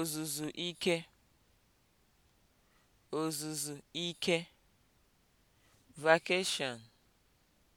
ozuzu ike ozuzu ike vacation